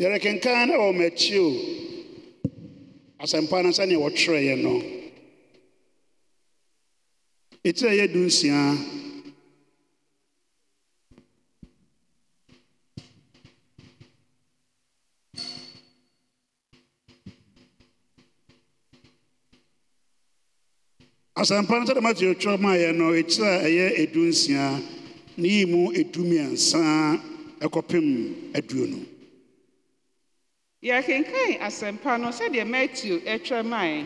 yɛrekenkan wɔ m'akyi o asɛmpa no sɛnea wɔtwerɛeɛ no ɛtirɛ yɛ du nsia asɛmpa no sɛde matthew twerɛ maayɛ no ɛkyirɛ a ɛyɛ ɛdu nsia ne yi mu ɛdu mmiɛnsa ɛkɔpem aduonu yɛkenkan asɛmpa no sɛdeɛ matthew ɛtwa mae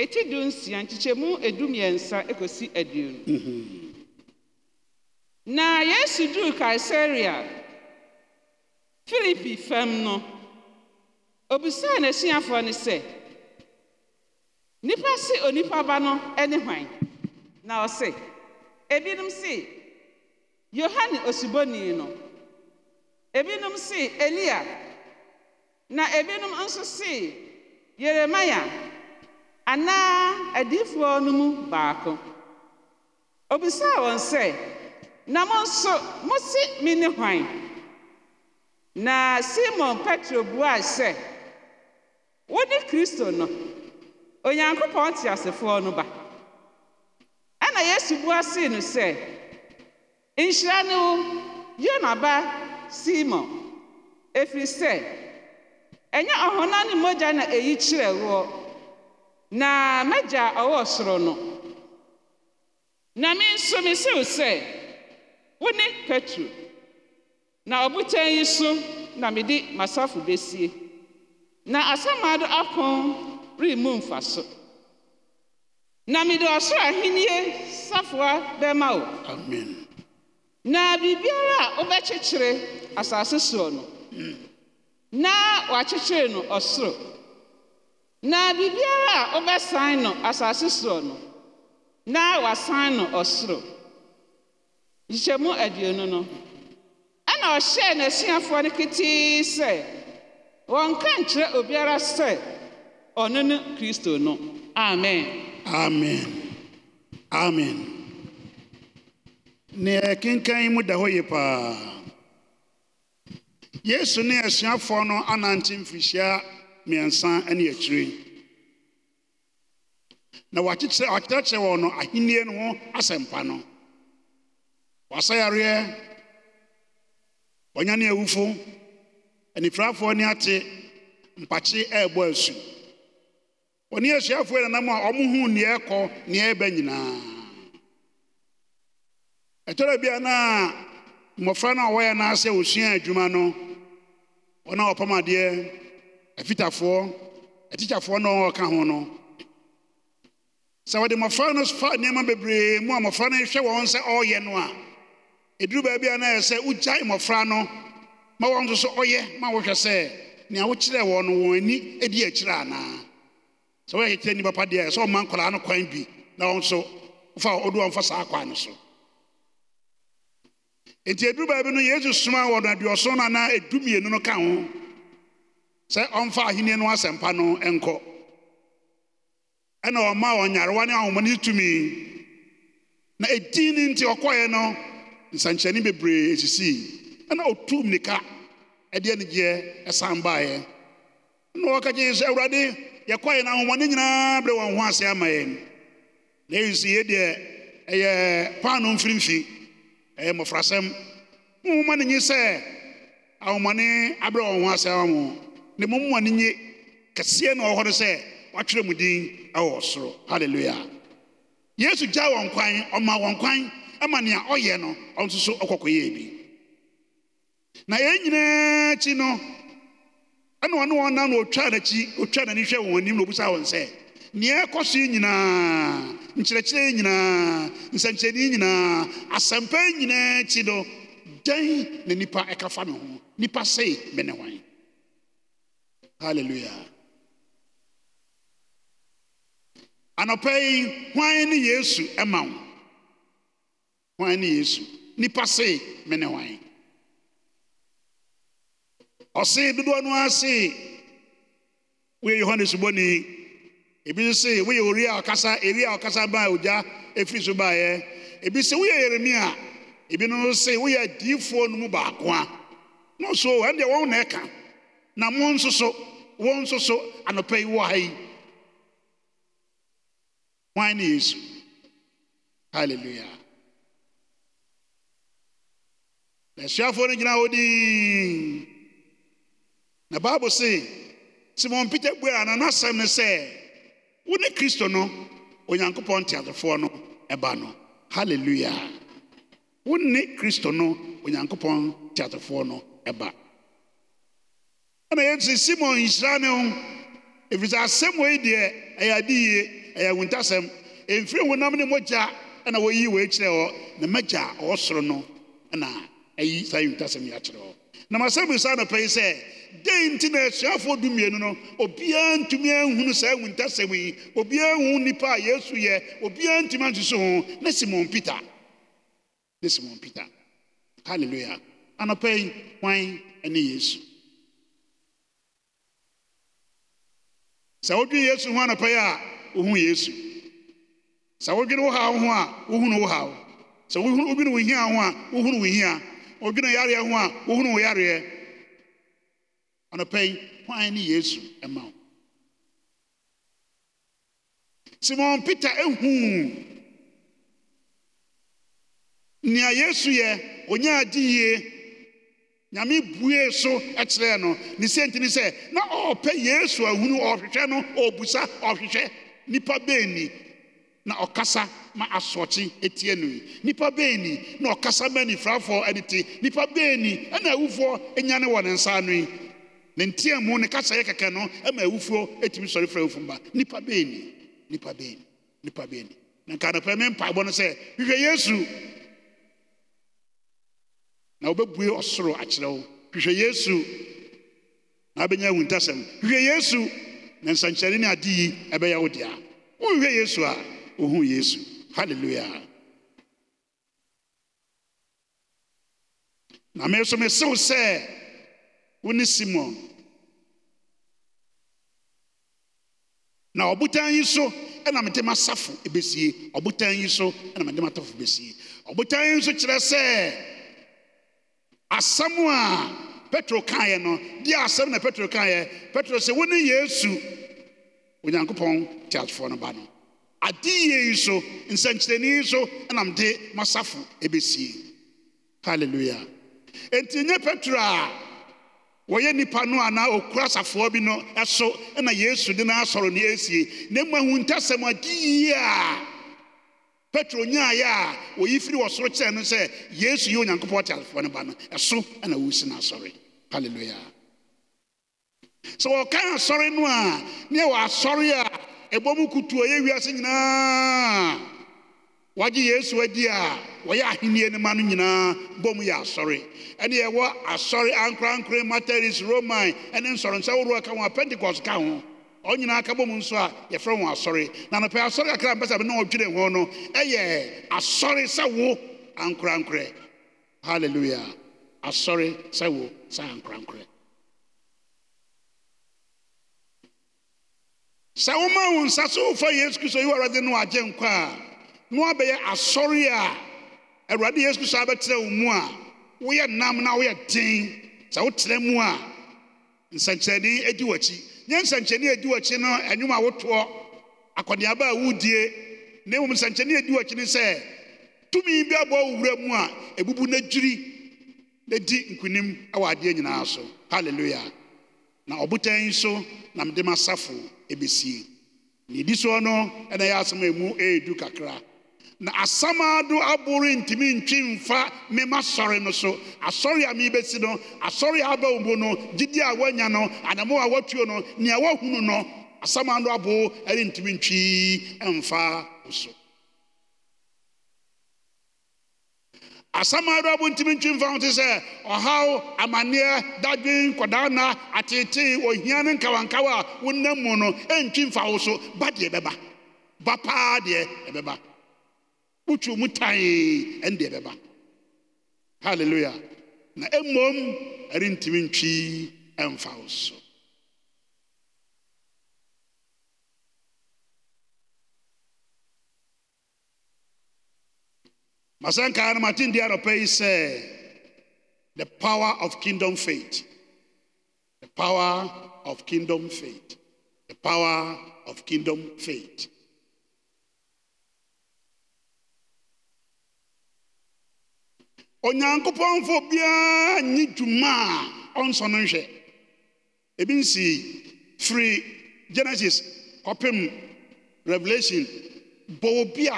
ɛti du nsia nkyekyɛmu edumiɛnsa ekosi aduonu mhm. na yesu duu kaesarea filipi fam no obisaa n'asuafoɔ no sɛ Nipa si onipa ba no ne hwan na ɔse ebinom si, yohane osuboni no ebinom si, elia Na ebinom nso si Yeremia anaa adiyifoɔ no mu baako. Obisaa wɔn sɛ, “Na mo nso mose ne hwan?” Na Simon Petro bua sɛ, “Wone Kristo no, Onyankopɔn teasefoɔ no ba.” Ɛnna Yesu bua see no sɛ, “Nhyira ne wo, Yona ba Simon, ɛfiri sɛ ɛnyɛ ɔhonam ne mogya na ɛyi kyerɛ woɔ na m'agya ɔwɔ soro no na me nso mesew sɛ wo ne petro na ɔbotan yi so na mede m'asafo bɛsie na asamaado apon remmu mfa so na mede ɔsoro ahennie safoa bɛma wo amen na biribiara a wobɛkyekyere asase soɔ no mm. na wɔakyekyere no ɔsoro na biribiara a wobɛsan no asase soɔ no na wasan no ɔsoro nhyihyɛmu aduonu no ɛna ɔhyɛɛ n'asuafoɔ no ketee sɛ wɔnka nkyerɛ obiara sɛ ɔno ne kristo no amen amen amen neɛ kenkan mu da hɔ yi paa yesu ne asuafoɔ no anante mfirihyia mmiɛnsa ne akyire na wakyerɛkyerɛ wɔn no ahennie no ho asɛmpa no wasɛ yareɛ wɔnya ne awufo anifirafoɔ ne ate mpakye ɛrebɔ asu wɔne asuafoɔ nanam a ɔmohu nea ɛkɔ nea ɛbɛ nyinaa ɛtɔrɔ bia na mmɔfra no a wɔyɛ n'asɛ osua adwuma no wọn a wɔpam adeɛ afitafoɔ atikyafoɔ na wɔka ho no sɛ wɔde mmɔfra no fa nneɛma bebree mu a mmɔfra no hwɛ wɔn sɛ ɔreyɛ no a ɛduru baabi a na ɛyɛ sɛ wogyae mmɔfra no ma wɔn nso so ɔyɛ ma wɔhwɛ sɛ nea wokyerɛ wɔn no wɔn ani edi akyire anaa sɛ woyɛ kyerɛ nnipa padeɛ deɛ sɛ ɔma nkwadaa no kwan bi na wɔn nso wofa ɔdu wɔn fa saa kwan no so enti ɛduru baabi no yesu suma wɔ no aduɔson no anaa ɛdumienu no ka ho sɛ ɔmfa ahenni no asɛmpa no nkɔ ɛna ɔma ɔnyarewa ne ahomane tumi na ɛdin no nti ɔkɔeɛ no nsankyerɛnne bebree esisi, ɛna ɔtum nika ɛde anigyeɛ ɛsan baeɛ na wɔka kye sɛ awurade yɛkɔeɛ no ahomane nyinaa berɛ wɔn ho ase ama yɛn na ɛyi sɛ yɛ deɛ ɛyɛ paano mfirimfi ɛyɛ mmɔfrasɛm momoma no nye sɛ ahomane abrɛ wɔn ho asɛm mo ne momoma nye kɛseɛ na ɔwɔ hɔ no sɛ wɔatwerɛ mu din ɛwɔ soro halleluya yesu gya wɔn kwan ɔma wɔn kwan ɛma nea ɔyɛ no ɔno nso so na yɛn nyinaa akyi no ɛna ɔne wɔn nam na ɔtwaa n'akyi na ɔbisa wɔn nea ɛkɔ yi nyinaa nkyerɛkyerɛ yi nyinaa nsɛnkyerɛnne yi nyinaa asɛmpa yi nyinaa akyi no dɛn na nipa ɛka fa me ho nipa sei me ne hwan hallelujah anɔpa yi hwan ne yesu ɛma wo hwan ne yesu nipa sei me ne hwan ɔse dodoɔ no ase woyɛ yohane subɔni ebi nso sɛ woyɛ oria a ɔkasa eri a ɔkasa baa ogya efiri so baeɛ ebi sɛ woyɛ yeremia ebi nso sɛ woyɛ adiifoɔ no mu baako a na nso wɔn deɛ wɔn na ɛka na wɔn nso so wɔn nso so anɔpɛ yi wɔ ha yi wɔn ne yesu hallelujah asuafoɔ no gyina hɔ dii na baabu sɛ simon peter buara na n'asɛm ne sɛ. wo ne kristo no onyankopɔn nteasefoɔ no ɛba no halleluya wo ne kristo no onyankopɔn nteasefoɔ no ɛba ɛna yɛnsi simon nhyira ne ho ɛfiri sɛ asɛm wei deɛ ɛyɛ ade yie ɛyɛ awuntasɛm ɛmfiri honam ne mogya ɛna wɔyi wei kyerɛ hɔ na mɛgya a ɔwɔ soro no ɛna ɛyi saa awuntasɛm yi akyerɛ hɔ na masɛm saa anɔpɛyi sɛ dɛn nti na du dumienu no obiara ntumi anhunu saa awu ntasɛm yi obiara hu nnipa a yesu yɛ obiara ntumi ansusu ho ne simon peter ne simon peter hallelujah anɔpɛ yi hwan yesu sɛ wodwene yesu ho anɔpɛ yi a wohu yesu sɛ wodwene wo haw ho a wohunu wo haw sɛ wodwene wo hia ho a wohunu wo hia obi na yari ho a wohunu wo yareɛ anɔpɛ yi hwan ne yesu ma wo simon peter ehuu nea yesu yɛ onye di yie nyame buee so kyerɛɛ no ne senti ne sɛ na ɔrepɛ yesu ahunu ɔrehwehwɛ no ɔrebusa ɔrehwehwɛ nnipa ni. na ɔkasa ma asoɔkye atianoi nnipa beani na ɔkasa manifrafoɔ de te nnipa beani ɛna awufoɔ nya ne wɔ ne nsa noi ne ntiɛ mu ne kasayɛ kɛkɛ no ma awufoɔ tumi sɔrefra awuf ma nipa beni b beni nka nopɛ mempa bɔ no sɛ hwehwɛ yesu na wobɛbue ɔsoro akyerɛ wo hwehwɛ yesu na abɛnya awu ntasɛno hwehwɛ yesu ne nsankyerɛne ne ade yi ɛbɛyɛ wo dea wohwehwɛ yesu a ohun yesu hallelujah na me nso mesew sɛ wo ne simon na ɔbotan yi so ɛna mede m'asafo bɛsie ɔbotan yi so ɛna mede m'atafo bɛsie ɔbotan yi nso kyerɛ sɛ asɛm a petro kaeɛ no deɛ asɛm na petro kaeɛ petro sɛ wo yesu onyankopɔn teasefoɔ no ba no adeɛ yi so nsɛnkyerɛnne yi so nam de masafo ɛbɛsie halleluya enti nyɛ petro a wɔyɛ nnipa no anaa ɔkura asafoɔ bi no ɛso na yesu de no asɔre no ɛsie na ahu ahintasɛm adeyie a petro nyaaeɛ a wɔyi firi wɔ soro kyerɛ no sɛ yesu yi yɛ onyankopɔn te asafoɔ no ba no ɛso na wɔsi no asɔre halleluya sɛ wɔkan asɔre no a ne ɛwɔ asɔre a ɛbɔ mu kutuo yɛ wiase nyinaa wagye yesu adi a wɔyɛ ahenni no ma no nyinaa bɔ mu yɛ asɔre ɛne yɛwɔ asɔre ankorankore materis roman ɛne nsɔrensa woroɔ ka ho a pentecost ka ho ɔn nyinaa ka bɔ mu nso a yɛfrɛ wɔn asɔre na nɔpɛ asɔre kakra mpɛ sɛ bɛ na ɔdwene ho no ɛyɛ asɔre sɛ wo ankorankorɛ hallelujah asɔre sɛ wo sɛ ankorankorɛ sɛ woma wo nsa so wofa yesu kristo yi awurade no agye nkwa a na woabɛyɛ asɔre a awurade yesu kristo ụmụ wo mu a nam na woyɛ den sɛ wotena mu a nsɛnkyerɛnne adi w'akyi nyɛ nsɛnkyerɛnne adi w'akyi no wotoɔ akɔneaba a wodie na mmom adi w'akyi ne sɛ tumi bi abɔ wo wura a ebubu na dwiri na di nkonim wɔ adeɛ nyinaa so na ɔbotan nso na mede m'asafo ɛbɛsie ne so soɔ no ɛna ɛyɛ asɛm a ɛmu ɛɛdu kakra na asam ado aboro ntumi ntwi mfa mmemme masɔre no so asɔre a merebɛsi no asɔre a aba mu no jide a woanya no anamo a woatuo no nea woahunu no asam ado ntumi ntwi mfa wo asɛm adoa bo ntimi mfa ho te sɛ ɔhaw amanneɛ dadwen nkɔdaa na ateetee ohia ne nkawankawa a wonam mu no ɛntwi mfa wo so ba deɛ ɛbɛba ba paa deɛ ɛbɛba wotwi mu tae ɛne deɛ ɛbɛba halleluya na mmom ɛrentimi ntwi ɛmfa wo so Masanka Martin Diaropei said, uh, The power of kingdom faith. The power of kingdom faith. The power of kingdom faith. onyankopɔn fo biara ni juma on ɔnsɔ no nhwɛ ebi genesis Open revelation bɔ obi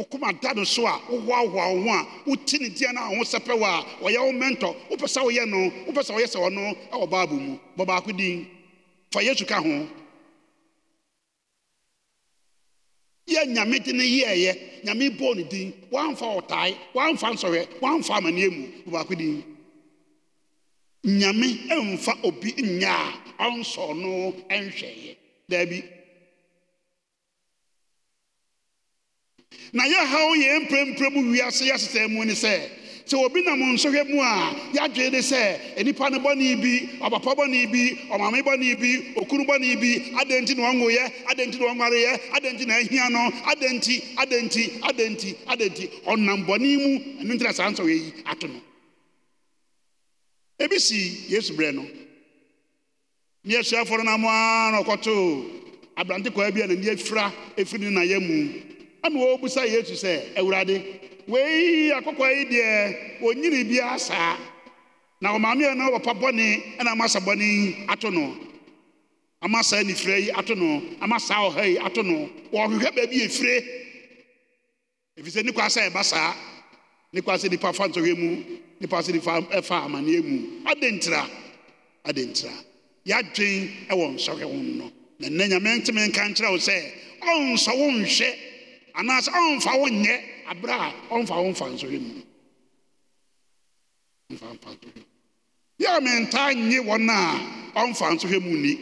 wokoma da no so a wohoahoa wo ho a wote ne dia no a wo sɛpɛ wo a ɔyɛ wo mentor wopɛ sɛ woyɛ no wopɛ sɛ woyɛ sɛ ɔno ɛwɔ bible mu din fa yesu ka ho yɛ nyame de yɛɛyɛ nyame bɔɔ din woamfa ɔtae woamfa nsɔhwɛ woamfa amanneɛ mu din nyame ɛmfa obi nyɛ a ɔnsɔ no ɛnhwɛeɛ na yɛhaw yɛn mprempren mu wiase yɛasesɛe mu ne sɛ sɛ obi nam nsɔhwɛ mu a yɛadwee ne sɛ nnipa no bɔne bi ɔpapa bɔne bi ɔmame bɔne bi okunu bɔne bi adɛn nti na ɔnwoyɛ adɛn nti na ɔnwareyɛ adɛn nti na ahia no adɛn nti adɛn nti adɛn nti adɛn nti ɔnam bɔne mu ɛno nti na saa nsɔhwɛ yi ato no ebi si yesu berɛ no ne asuafoɔ no nam a na ɔkɔtoo aberante kwaa bi a n'ani afira ɛfiri ne nayɛ mu ama wɔbisa yesu sɛ awurade wei akɔkɔ yi deɛ onyini bi asa na ɔmaame yɛn na wɔpa bɔne ɛna ama sa bɔne ato no ama saa nifirɛ yi ato no ama saa ɔha yi ato no wɔhwehwɛ baabi efire efisɛ ne kwasa ɛba saa ne kwasa nipa fa ntɔhwɛ mu ne kwasa nifa ɛfa amaneɛ mu adentira adentira yadwen ɛwɔ nsɔhwɛ ho no na nna nyame ntumi nka nkyerɛ wo sɛ ɔnsɔ wo nhwɛ. anaasɛ ɔmfa wonyɛ aberɛ a ɔmfa womfa nsɔhwɛ mu ɛ yɛ mentaa nye wɔna ɔmfa nsɔhwɛ mu nni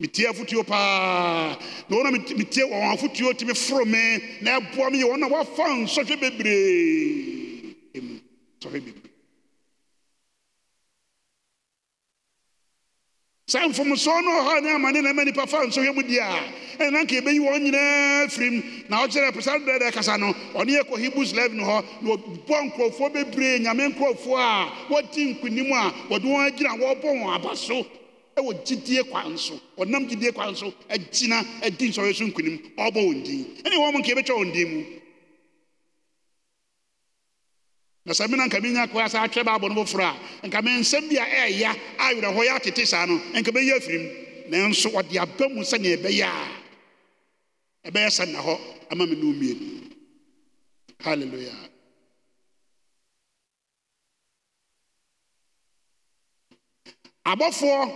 metie afotuo paa n wona etie afotuo temi foro me maɛboa me yɛ wɔ a woafa nsɔhwɛ bebreeɛ saa mfomsoɔ no ɔhɔ ne amane na mani nipa nsɔhwɛ mu di a na nka ɛbɛyi wɔn nyinaa firim na ɔkyerɛ pesa dɛdɛ kasa no ɔne yɛ hebrews live hɔ na ɔbɔ nkurɔfoɔ bebree nyame nkurɔfoɔ a wɔdi nkonim a wɔde wɔn agyina wɔrebɔ wɔn aba so ɛwɔ gyidie kwan so ɔnam gyidie kwan so agyina adi nsɔhwɛ so nkonim ɔrebɔ wɔn din ɛne wɔn nka ɛbɛtwa wɔn din mu na sɛ mena nka menya koa sɛ atwerɛ baabɔ no foforɔ a nka me nsɛm bi a ɛɛya awerɛhɔ yɛ atete saa no nka bɛyɛ afirim nanso ɔde aba mu sɛnea ɛbɛyɛ a ɛbɛyɛ sɛ nna hɔ ama me no mmien hallelujah. abɔfoɔ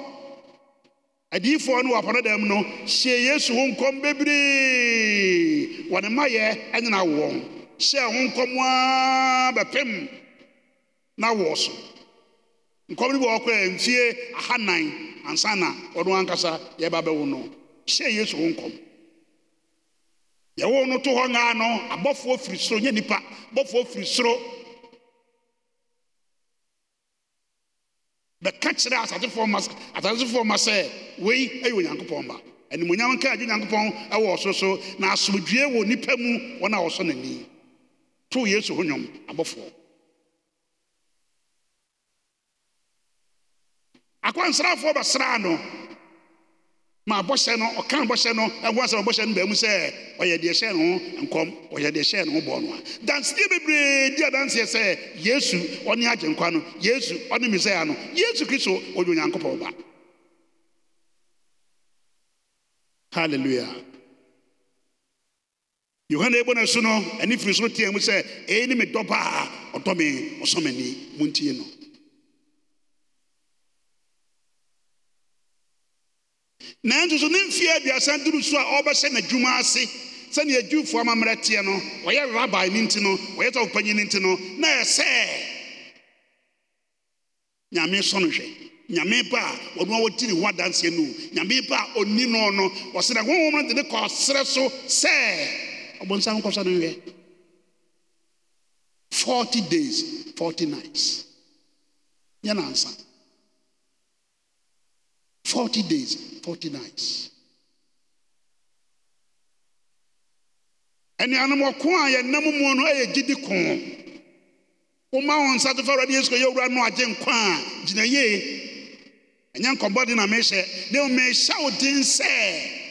adiyifoɔ no dan mu no hyɛ yesu ho nkɔm bebree wɔne mmayɛ ɛnyina wɔn hyɛɛ ho nkɔm ara bɛpem na wɔ so nkɔm no bi wɔkɔɛ mfie ahanan ansa na ɔno ankasa yɛba bɛwo no hyɛɛ yesu ho nkɔm yɛwo no to hɔ ngaa no abɔfoɔ firi soro nyɛ nipa abɔfoɔ firi soro bɛka kyerɛ asatefoɔ ma asatefoɔ ma sɛ wei ɛyɛ onyankopɔn ba animonyam nka agye onyankopɔn ɛwɔ ɔso so na asomdwoe wɔ nipa mu wɔn a wɔsɔ n'ani too yesu ho nnwom abɔfoɔ akwansrafoɔ bɛsraa no ma bɔhyɛ no ɔka bɔhyɛ no ɛho asɛm bɔhyɛ no baamu sɛ ɔyɛ deɛ hyɛ ne ho nkɔm ɔyɛ deɛ hyɛ ne ho bɔɔ no a danseɛ bebree di adanseɛ sɛ yesu ɔne agyenkwa no yesu ɔne mesaia no yesu kristo ɔyɛ onyankopɔn ba hallelujah yohane ɛbɔ no su no ɛni firi nsoro tea mu sɛ ɛi nemedɔ ba a ɔdɔ me ɔsɔmani monti no nantu so ne mfee aduasan duruso a ɔbɛhyɛ n'adwuma ase sɛnea adwufoɔ mammerɛ teɛ no ɔyɛ rabae no nti no ɔyɛ sɛfopanyin no nti no naɛsɛ nyame sɔne hwɛ nyame ba a wɔanoa wɔtine ho adanseɛ no nyame ba a ɔni no no wɔsenɛ honhomate ne kɔɔserɛ so sɛ Obonsam Kosa no here. 40 days, 40 nights. Yan answer. 40 days, 40 nights. And animal kwan yɛ nam mu no yɛ gidi kɔn. Woma wɔn nsa to fa awurade yesu yɛ owura no agye nkwa a gyina yie. Ɛnyɛ nkɔmbɔ de na mehyɛ. Ne mehyɛ wo den sɛ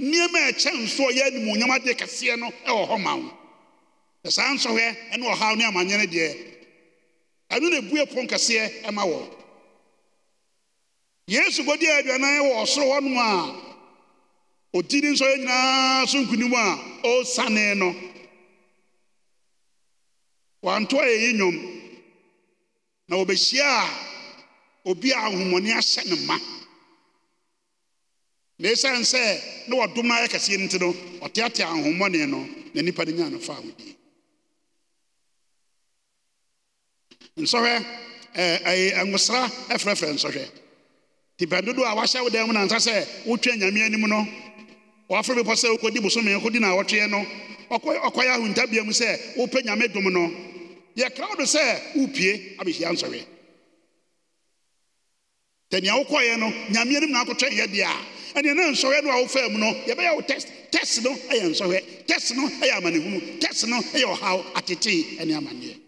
nneɛma ɛkyɛ nso ɔyɛ animuonyam adeɛ kɛseɛ no wɔ hɔ ma wo na saa nsɔhwɛ ne ɔhaw ne amanneɛ no deɛ ɛno na ebue pon kɛseɛ ɛma wɔ yesu gɔdi aduanan wɔ ɔsoro hɔ nom a ɔdi ne nsɔyɛ nyinaa so nkonim a ɔresane no wanto a ɛyi nnwom na wɔbɛhyia a obi a ahomɔne ahyɛ ne ma na ɛsiane sɛ ne wɔdom no ayɛ kɛseɛ no nti no ɔteatea ahohommɔne no na nnipa no nyaa no faa hodie nsɔhwɛ nwosra ɛfrɛfrɛ nsɔhwɛ tipa bɛndodo a wahyɛ wo dan mu nansa sɛ wotwa nyame anim no wɔafrɛ bepɔ sɛ wokɔdi bosome kɔdi na wɔtweɛ no ɔkɔyɛ ahontabea mu sɛ wopɛ nyame dom no yɛkra wo do sɛ wopie abɛhyia nsɔhwɛ tɛ nea wokɔeɛ no nyame anim na akɔtwɛn yɛ deɛ a ɛneɛ na nsɔhwɛ no a wofaa mu no yɛbɛyɛ wo test test no ɛyɛ nsɔhwɛ test no ɛyɛ amanehunu test no ɛyɛ ɔhaw atetee ɛne amanneɛ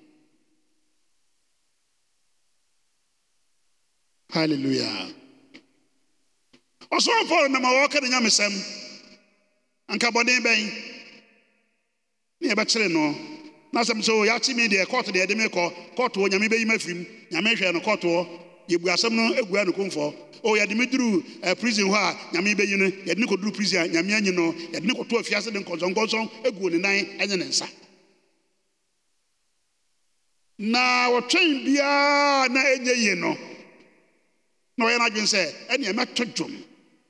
halleluya ɔsoro paul nam a wɔɔka ne nyamesɛm anka bɔne bɛn ne yɛbɛkyere no na asɛm sɛ yɛakye me deɛ kɔɔto deɛ ɛde me kɔ nyame ma m nyame hwɛ no yɛbu asɛm no agua o yɛde me duruu eh, prison hɔ a nyame ibe no yɛde ne duru prison a nyame anyi no yɛde ne kɔto afiase de nkɔnsɔnkɔnsɔn aguo ne nan ɛne ne nsa na wɔtwɛn biara na yi no na ɔyɛ n'adwene sɛ ɛneɛ mɛto dwom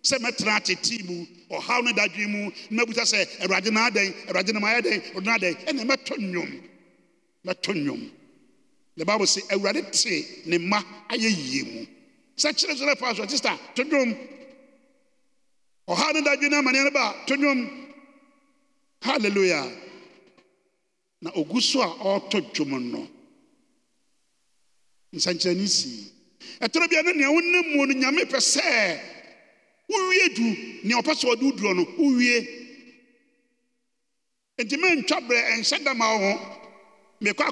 sɛ mɛtena atetee mu ɔhaw no dadwen mu na sɛ na adɛn na dɛn na adɛn nnwom the bible say awurade te ne mma ayɛ yie mu sɛ kyerɛkyerɛ fa so sista to dwom ɔha ne dadwe ne ba to dwom na ogu so a ɔretɔ dwom no nsɛnkyerɛnne sii ɛtɔrɔ ne nea wonam mu no nyame pɛ sɛ du nea ɔpɛ sɛ ɔde no ntwa berɛ dama mekɔ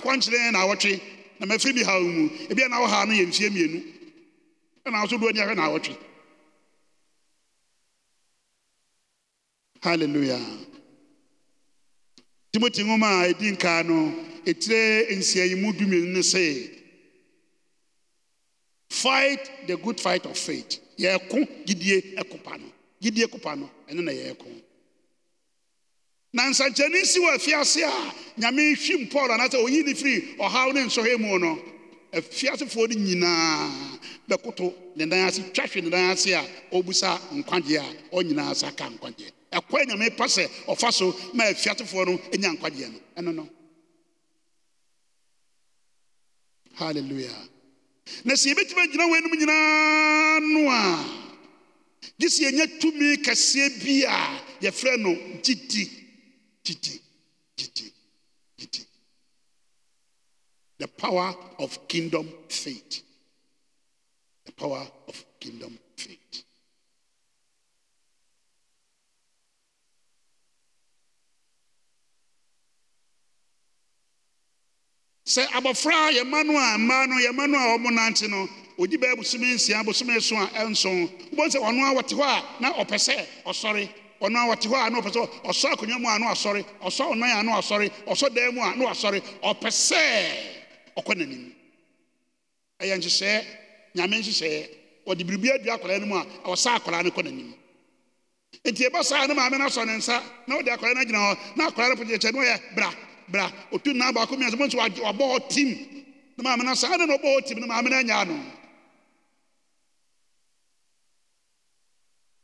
na awɔtwe na mu ebi no yɛ ɛna ahwɛ na hallelujah timoti nwoma a ɛdi nkaa no etire no fight the good fight of faith yɛɛko gyidie ɛkopa no gyidie kopa no ɛno na na nsankyɛnne si wɔ afiase a nyame hwim paul anaasɛ ɔyi ne firi ɔhaw ne nsɔhwɛ mu no afiasefoɔ no nyinaa bɛkoto ne nan ase twahwe ne nan ase a ɔbusa nkwagyeɛ a ɔnyinaa sa ka nkwagyeɛ ɛkɔ nyame pa sɛ ɔfa so ma afiasefoɔ no nya nkwagyeɛ no ɛno no halleluya na sɛ yɛbɛtumi agyina wɔanom nyinaa no a gye sɛ yɛnya tumi kɛseɛ bi a yɛfrɛ no gyidi Gigi, Gigi, Gigi. The power of kingdom faith. The power of kingdom faith. sɛ abɔfra a yɛma no a mmaa no yɛma no a wɔn nante no ogyi bɛɛ bosome nsia bosome nson a ɛnson wɔn sɛ ɔno a wɔte hɔ a na ɔpɛ sɛ ɔsɔre ɔno a wɔte hɔ a na ɔpɛ sɛ ɔsɔ akonnwa mu a na ọsọ ɔsɔ ɔnan a na wasɔre ɔsɔ dan mu a na wasɔre ɔpɛ sɛ ɔkɔ n'anim ɛyɛ nhyehyɛɛ nyame nhyehyɛɛ biribi akwadaa no mu a ɔsa akwadaa no kɔ n'anim nti saa maame no asɔ ne nsa na akwadaa no agyina hɔ na akwadaa no kyɛ no yɛ bra bra baako mmiɛnsa mo nso hɔ tim na maame no na ɔbɔ hɔ na maame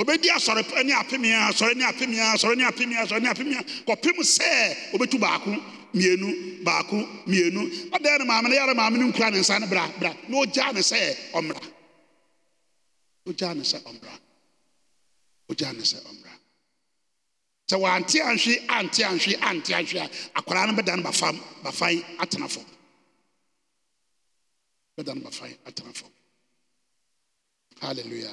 ɔobɛdi a sɔrene apm a sɔrena sɔ ne sɔne a kɔpe m sɛ ɔbɛtu baaoaao n ɛdan ne mae ne yɛra maameno nkura ne nsa ne ra na ɔgya ne sɛ ɔmmraane sɛ ɔmra ne sɛ ɔmmra sɛ wɔanteanhwe anteahwe anteanhwe a akwaraa no bɛdabfeabɛda n bafaeateaf alleluya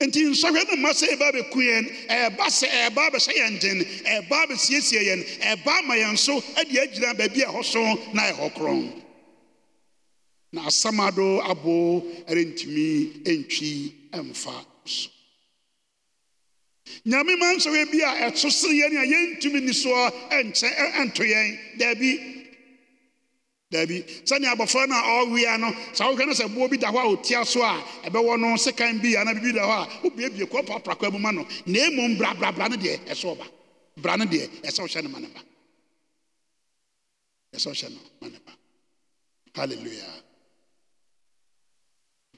nti nsɔhwɛ no mma sɛ ɛba bɛku yɛn ɛba sɛ ɛba bɛhyɛ yɛn den ɛba bɛsiesie yɛn ɛba ama yɛn so de agyina baabi a ɛhɔ so na ɛhɔ korɔn na asɛm ado abo ɛrentumi ntwi mfa so nyame ma nsɔhwɛ bi a ɛto sere yɛn a yɛntumi ni soɔ ɛnkyɛ ɛnto yɛn daabi daabi sani abɔfra na a ɔwea no saa wohwɛ no sɛ boɔ bi da hɔ a ɔtia so a ɛbɛwɔ no sekan bi anaa biribi da hɔ a bie kɔ paprakwa mu ma no na emu mmom brabrabra no deɛ ɛsɛ ɔba bra no deɛ ɛsɛ wohyɛ no ma ne ba ɛsɛ wohyɛ no ma ne ba hallelujah.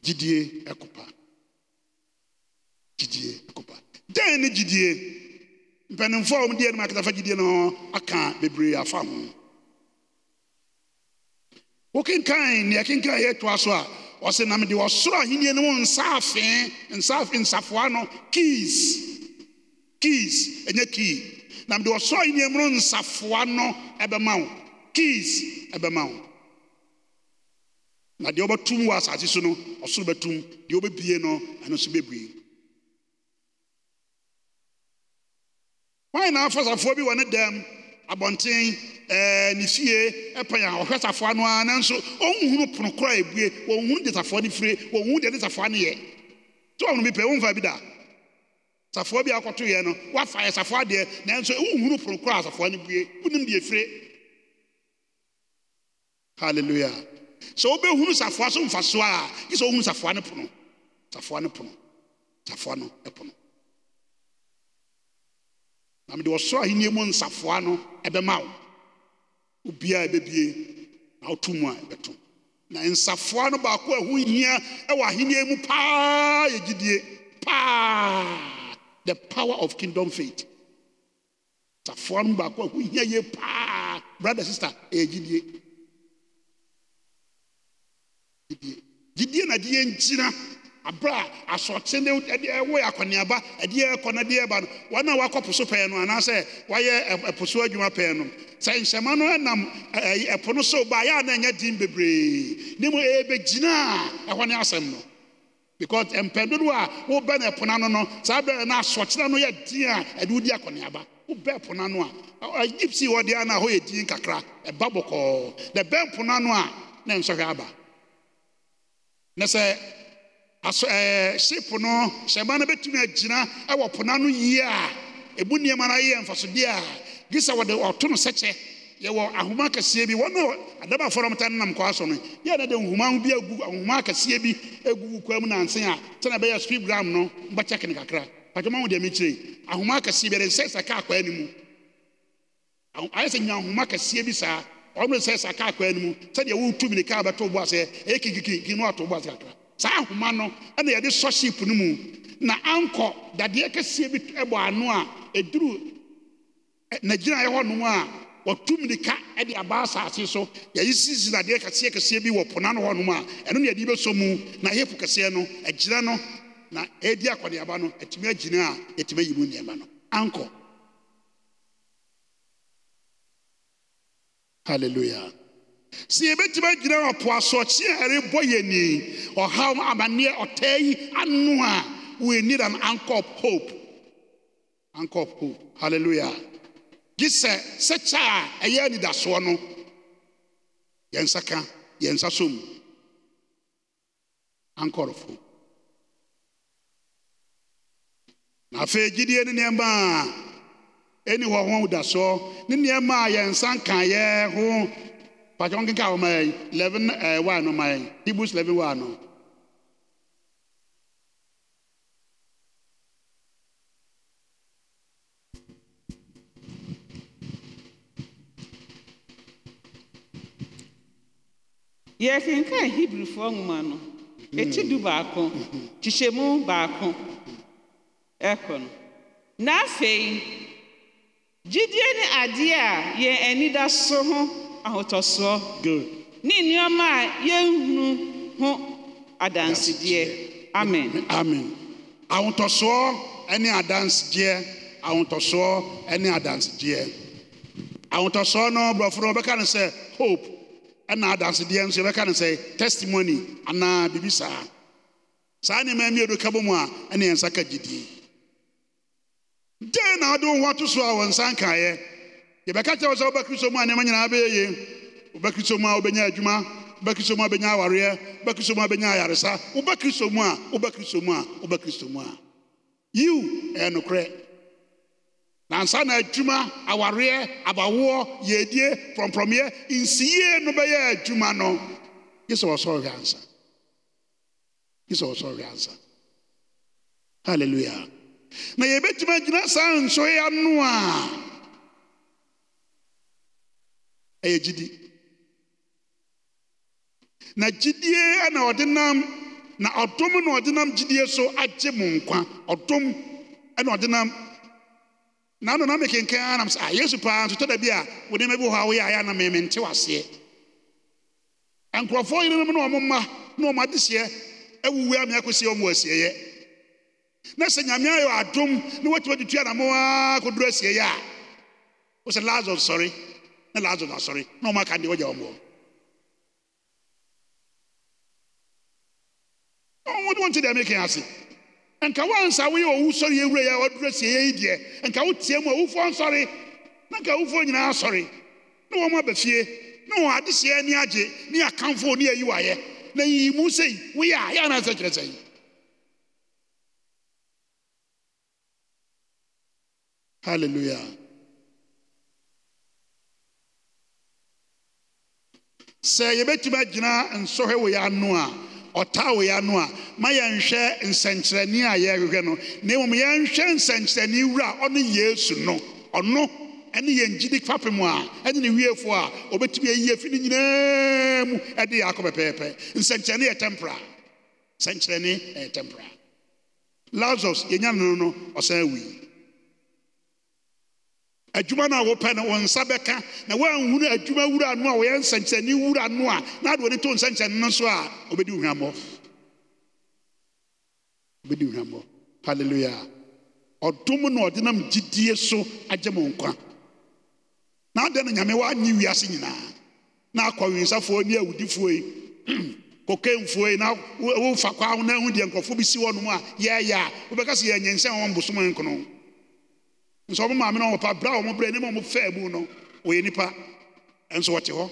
gyidie ɛkopa gyidie ɛkopa dɛn ne gyidie mpanimfoɔ a wɔn deɛ no mu akatafa gyidie no aka bebree afa ho wo kenkan nea kenkan ɛyɛtoa so a ɔsɛ namde ɔsoro ahennino m nsaafee nsafoa no kes kes ɛnyɛ ke nam de wɔsoro aheniɛnomno nsafoa no ɛbɛma wo kes ɛbɛma wo na deɛ wobɛtum wɔ asase so no ɔsono bɛtum deɛ wobɛbie no ɛno so bɛbe wae naa fa safoɔ bi wɔ ne dam abɔnten ɛɛ eh, ne fie ɛpɛn eh, ɔhwɛ safoa no ara nanso ɔnhunu pono kora ebue ɔnhunu de safoa no fire ɔnhunu deɛ de safoa no yɛ tí ɔhunu bi pɛ fa bi da safoa bi akɔto yɛ no wafa yɛ safoa deɛ nanso ɔnhunu pono kora safoa no bue ɔnum hallelujah sɛ ɔbɛhunu safoa so nfa so a yi sɛ ɔhunu safoa no pono safoa no pono safoa no pono. namede wɔsoro ahenniɛ mu nsafoa no ɛbɛmawo wobiaa ɛbɛbie na woto mu a ɛbɛto na nsafoa no baako a aho hia wɔ ahenniɛ mu paa yɛgyidie paa the power of kingdom faith nsafoa no mu baako a ho hia yi paa bratder sister ɛyɛgyidiei gyidie nade yɛ nkyina abra asɔkye ne ɛde ɛwɔ akɔneaba ɛde ɛkɔ na ɛde ɛba no wɔn a wakɔ po pɛɛ no anaasɛ wɔayɛ ɛpo so adwuma pɛɛ no sɛ nhyɛma no ɛnam ɛɛ ɛpo no so ba yɛ a na ɛnyɛ din bebree ne mu ɛbɛgyina ɛhɔ ne asɛm no because mpɛn dodo a wɔbɛ na ɛpo n'ano no saa bɛrɛ na asɔkye no yɛ din a ɛde wɔdi akɔneaba wɔbɛ ɛpo n'ano a gypsy wɔ deɛ na ɛhɔ yɛ din kakra ɛba bɔkɔɔ na ɛbɛn po n'ano a na nsɔhwɛ aba na sɛ aso ɛɛ eh, ship no hyɛma no bɛtumi agyina ɛwɔ po yie a ebu nneɛma no ayɛ mfasodeɛ a gye sɛ wɔde ɔto no sɛkyɛ yɛwɔ ahoma akɛseɛ bi wɔn a adaba afɔrɔmta no nam so no yɛ na de nhoma bi agu ahoma akɛseɛ bi agu kwa mu nansen a sɛna ɛbɛyɛ speed gram no mbɛkyɛke no kakra patwama wo deɛ mekyire ahoma bi yɛde nsɛ sɛ kaa kwan no mu ayɛ sɛ nya bi saa ɔno nsɛ sɛ kaa kwan no mu sɛdeɛ ne kaa bɛto bo bo saa ahoma no na yɛde sɔ ship no mu na ankɔ dadeɛ kɛseɛ bi bɔ ano a ɛduruu nagyinaa yɛ hɔnom a wɔtum nika ɛde abaa sase so yɛye siisi dadeɛ kɛseɛkɛseɛ bi wɔ pona no hɔnom a ɛno ne adi bɛsɔ mu na ɛhɛfu kɛseɛ no agyina no na ɛɛdi akɔneaba no atumi agyina a yɛtumi ayimu nneɛma no ankɔ halleluia sɛ yɛbɛtumi agyina ɔpoasoɔkye a ya yɛni ọha amanneɛ ɔtaa yi anụ a we need an anchor of hope anchor of hope hallelujah gye sɛ sɛkyɛ a ɛyɛ anidasoɔ no ya nsa ka ya nsa so m anchor of hope na afei gyidie ne a ɛni hɔ ho dasoɔ ne nneɛma a nsa pàtó wọn kíkà ọmọ ẹ eleven ẹ wà nù ọmọ ẹ hebrews eleven wà nù. yɛkenkaa hebrifoɔ nwoma no du baako kyehyɛmu baako ɛkɔ no na afei gyidie ne adeɛ a da so ho ahotɔsoɔ good ne nneɛma a yɛnhunu ho adansedeɛ amen amen ahotɔsoɔ ne adansedeɛ ahotɔsoɔ ne adansedeɛ ahotɔsoɔ no borɔfo no wɔbɛka no sɛ hope ɛna adansedeɛ nso yɛbɛka no sɛ testimony anaa biribi saa saa nneɛma mmienu ka bɔ mu a ɛne yɛn nsa ka gyidie dɛn na wode wo ho ato so a wɔ nsa nkaeɛ yɛbɛka kyerɛ wo sɛ wobɛkristo mu a nneɛma nyinaa bɛyɛ ye wobɛkristo mu a wobɛnya adwuma wobɛkristo mu a wobɛnya awareɛ wobɛkristo mu a wobɛnya ayaresa wobɛkristo mu a wobɛkristo mu a wobɛkristo mu a yiw ɛyɛ nokorɛ nansa na adwuma awareɛ abawoɔ yɛdie prɔmprɔmeɛ nsiyie no bɛyɛ adwuma no gye sɛ wɔsɔre ansa gye sɛ wɔsɔre ansa halleluya na yɛbɛtumi agyina saa nsoya no a ɛyɛ gyidi na gyidie ana ɔde nam na ɔdom na ɔde nam gyidie so agye mo nkwa ɔdom na ɔde nam na ano nam kenkan anam sɛ a ah, yesu paa nso tɔda bi a wo nneɛma bi wɔ hɔ a woyɛ ayɛ anam mɛmɛ nte waseɛ nkurɔfoɔ yerenom na ɔmo mma na ɔmo adeseɛ awuwu amia kɔsi ɔmo asieɛ na sɛ nyame ayɛ adom na watumi atutu anamo ara kɔduru asieɛ a wosɛ lazarus sɔre na lazarus asọrị na ụmụaka ndị o ji ọmụọ ọnwụ dị ntị dị eme ka ya asị nka wansa wee owu sọrọ e ya ewure ya ọdụrụ si ya idie nka wotie mu owufo nsọrị na nka owufo nyinaa asọrị na wɔn abɛfie na wɔn ya ni agye ne akamfo ne ayi wayɛ na yiyi mu sɛ wụ ya, ya na anaasɛ kyerɛ sɛ hallelujah sɛ yɛbɛtumi agyina nsɔhwɛ wɔ yɛ ano a ɔtaa wɔ yɛ ano a ma yɛnhwɛ nsɛnkyerɛnne a yɛrehwɛ no na mmom yɛnhwɛ nsɛnkyerɛnne wura a ɔne yesu no ɔno ɛne yɛn gyidi fapem a ɛne ne wiefoɔ a ɔbɛtumi ayi afi no nyinaa mu ɛde yɛ akɔ pɛpɛɛpɛ nsɛnkyerɛnne yɛ tempra nsɛnkyerɛnne yɛ tempra lazarus yɛnya no no ɔsan awui adwuma no a wopɛ no wo nsa bɛka na woanhunu adwuma wura no a wɔyɛ nsɛnkyerɛnne wura no a na ade wɔne to nsɛnkyerɛnne no so a wobɛdi hwammɔ wobɛdi hwammɔ halleluya ɔdom na ɔde nam gyidie so agye mo nkwa na adɛn no nyame woanye wiase nyinaa na akɔwensafoɔ ne awudifoɔ yi kɔkɛmfoɔ yi na wofa kwa wo na ahu deɛ nkɔfoɔ bi si hɔ nom a yɛɛyɛ a wobɛka sɛ yɛanyɛnsɛn wɔn bosom nkono nso ɔmo maame no ɔpa bra a ɔmo brɛ ne ma ɔmo fɛɛ mu no ɔyɛ nipa nso ɔte hɔ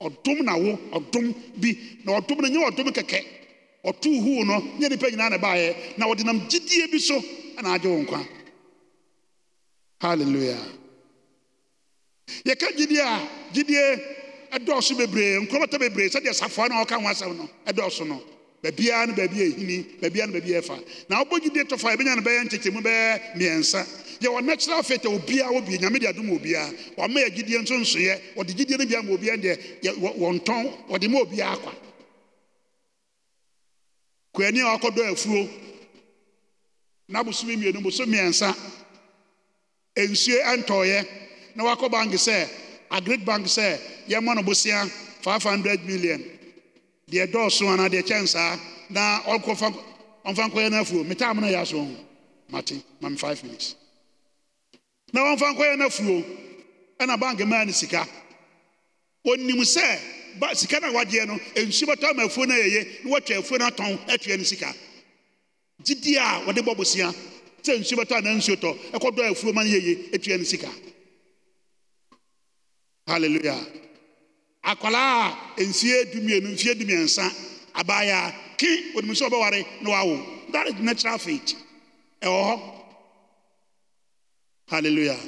ɔdom na wo ɔdom bi na ɔdom no nyɛ ɔdom kɛkɛ ɔtoo huu no nyɛ nipa nyinaa na baayɛ na ɔde nam gyidie bi so ɛna agye wo nkwa hallelujah yɛka gyidie a gyidie ɛdɔɔso bebree nkurɔmɔtɔ bebree sɛdeɛ safoa no a ɔka ho asɛm no ɛdɔɔso no baabiara na baabi ɛhini baabia na baabi ɛfa na wobɔ gyidie tɔfa yɛbɛnya no bɛyɛ nkyekyɛmu bɛyɛ mmiɛnsa yɛwɔ natural faith a obiara wɔ bi nyame de adom obiara wɔama yɛ nso nso na nsoyɛ wɔde gyidie no bi ama obiara deɛ wɔntɔn wɔde ma obiara kwa kwani a wakɔdɔ afuo na bosome mmienu boso mmiɛnsa nsuo ɛntɔɔyɛ na wakɔ bank sɛ agrid bank sɛ yɛmmɔ no bosea 500 million deɛ dɔɔso anaa deɛ kyɛn saa na ɔkɔfa ɔmfa nkɔyɛ no afuo metaa mo na yɛ aso ho mate mame five minutes na ɔmfa nkɔyɛ no afuo ɛna bank maa no sika ɔnim sɛ ba sika na a no nsu bɛtɔ ama afuo no ayɛye na watwa afuo no atɔn atua no sika gyidi a wɔde bɔ bosia sɛ nsuo bɛtɔ anaa nsuo tɔ ɛkɔdɔ afuo ma no yɛye atua no sika hallelujah akwaraa a nsia dumienu nfie dumiɛnsa abaayaa ki onim sɛ ɔbɛware na wawo that is natural faith ɛwɔ hɔ hallelujah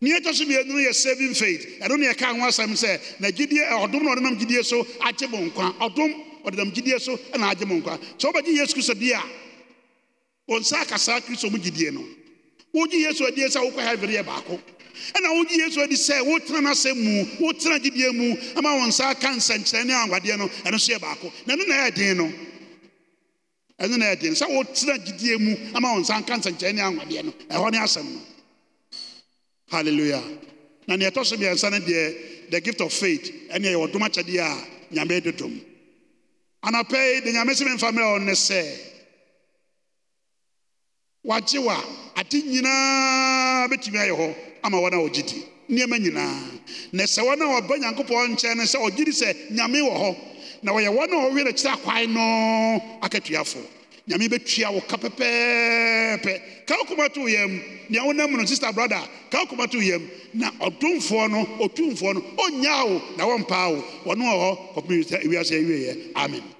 nea ɛtɔ so mmienu yɛ saving faith ɛno ne ɛka ho asɛm sɛ na gyidie ɔdom eh, na ɔdenam gyidie so agye mo nkwa ɔdom ɔdenam gyidie so na agye mo nkwa sɛ wobɛgye yesu kristo di a wɔn nsa akasaa kristo mu gyidie no wogye yesu adie sɛ wokɔ heaven yɛ baako ɛna wogye yesu adi sɛ wotena no asɛm mu wotena gyidie mu ama wɔn nsa aka nsɛnkyerɛ ne anwadeɛ no ɛno so yɛ baako na ɛno na ɛyɛ den no ɛno na ɛyɛ den sɛ wotena gyidie mu ama wɔn nsa aka nsɛnkyerɛ ne anwadeɛ no ɛhɔ ne asɛm no hallelujah na nea ɛtɔ so mmiɛnsa no deɛ the gift of faith ɛne ɛyɛ ɔdom akyɛdeɛ a nyame dodom anapɛ yi de nyame sɛ memfa mmerɛ ɔno ne sɛ wagye wa ade nyinaa bɛtumi ayɛ hɔ ama wɔ n wɔgye di nneɔma nyinaa na sɛ wɔn wɔba nyankopɔn nkyɛn no sɛ ɔgye di sɛ nyame wɔ hɔ na wɔyɛ wɔn a wɔwe noakyerɛ akwae no aka tuafoɔ nyame bɛtua wo ka pɛpɛɛpɛ ka wokoma tooyam nea wonam muno sister brather ka wokoma tooyam na ɔdomfoɔ no ɔtwumfoɔ no onya wo na wɔmpaa wo wɔno wɔ hɔ ɔawiase wieeɛ amen